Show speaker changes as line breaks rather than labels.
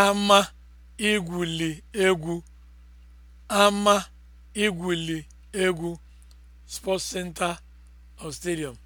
ama igwuli egwu ama igwuli egwu sports center or stadium